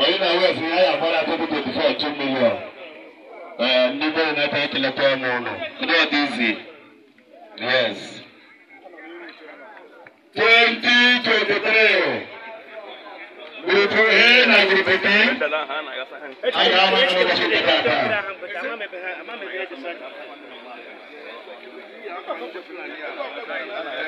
Oyún náà wẹ̀ fún yáyà fọ́lá tó kúkú tó fọ́ two million. Nígbà yìí náà tẹ́lẹ̀ tẹ́lẹ̀ tẹ́lẹ̀ mọ́ ọ̀nà. Ní ọdún ìsì. Yes. Twenty twenty three. Gbogbo ẹ̀ na gbogbo tẹ́. Àyà máa ń lọ sí ìgbà kan. Thank you.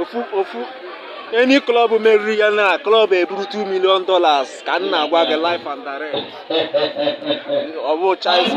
ofu ofu enyi klọb meriri ya na klọb eburu 2 million dollars ka nna agwa gị life and direct ọ bụ chaịs